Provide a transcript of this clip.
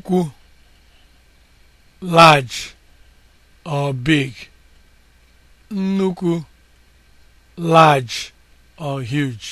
ukwu large or big nnukwu large or huge